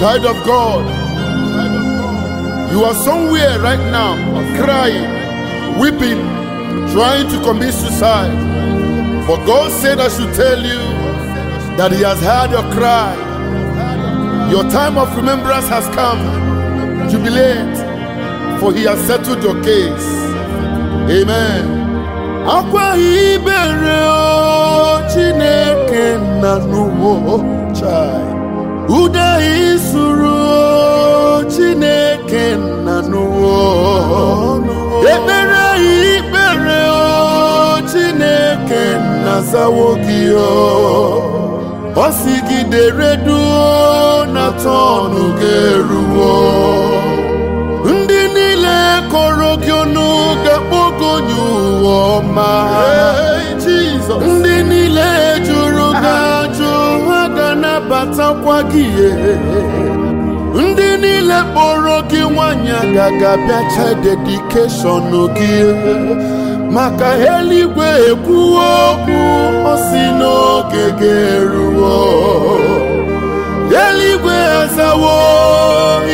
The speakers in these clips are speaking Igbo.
Child of God, you are somewhere right now crying, weeping, trying to commit suicide. But God said, I should tell you that He has heard your cry. Your time of remembrance has come. Jubilate, for He has settled your case. Amen. akwa ibere o Chineke na n'ugbo chai ude isuru chineke nna n'ụwa ekpere ikpere chineke nna zawo gị ọ sị gị na tọnụ ga eruwo ndị niile kọrọ gị ọnụ ga-akpọgo nye ụwa ọma ndị niile kpọrọ gị nwanyị ga-agabịacha dedikeshọn gị maka eluigwe ekwuo okwu ọ si n'oge ga-eruo eluigwe azawo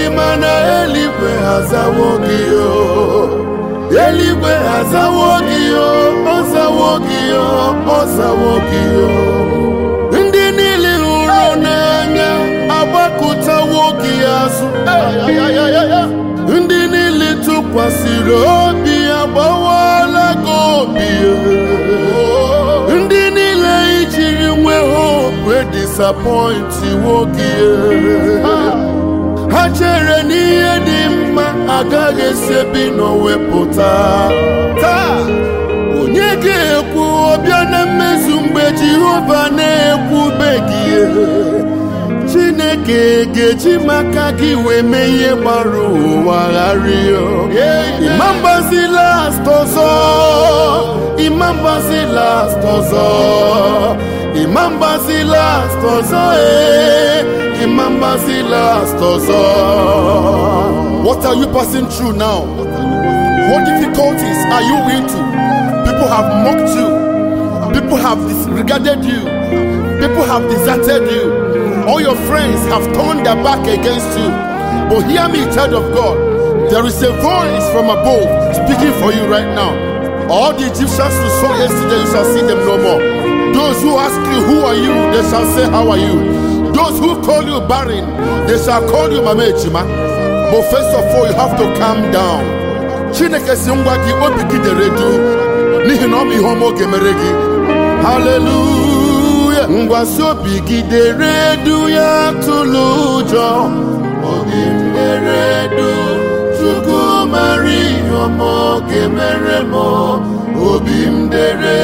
ịma na eluigwe azawo gị eluigwe azawo gị gị gị ndị niile tụkwasịrị obi ya gbawala gị ndị niile ijiri nwe hope disapọinti nwoke ha chere n'ihe dị mma agaghị esebi n'owepụta taa onye ga-ekwu ọbịa na mmezu mgbe Jehova na-ekwubeghị Chineke ga-eji maka gị wee mee ihe gbara ụwa gharịa ịmambazi last ọzọ ịmambazi last ọzọ ịmambazi last ọzọ ee eh, ịmambazi last ọzọ What are you passing through now? What difficulties are you into? People have mocked you. People have disregarded you. People have deserted you. All your friends have turned their back against you. But hear me, child of God. There is a voice from above speaking for you right now. All the Egyptians who saw yesterday, you shall see them no more. Those who ask you, Who are you? they shall say, How are you? Those who call you barren, they shall call you Mamechima. But first of all, you have to calm down. Chineke Hallelujah. ngwa obi gidere du ya tụlụ ụjọ obi m dere du chukwu mara ihe ọma ọ ga-emere m obi m dere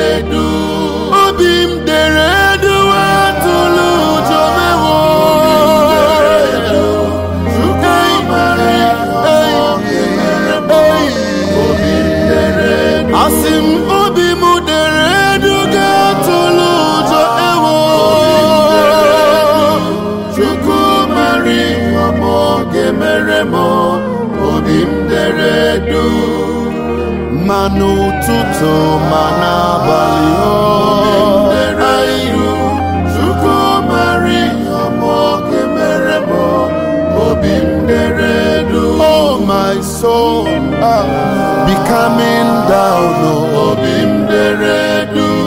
ma n'ụtụtụ ma n'abalị iru Chukwu mara mere m obi ndere edu oh my soul ah. down oh, obi ndere